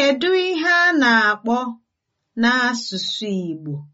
Kedu ihe a na-akpọ n'asụsụ Igbo?